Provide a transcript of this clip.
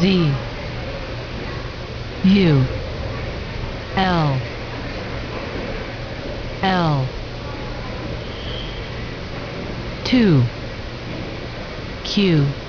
Z U L L 2 Q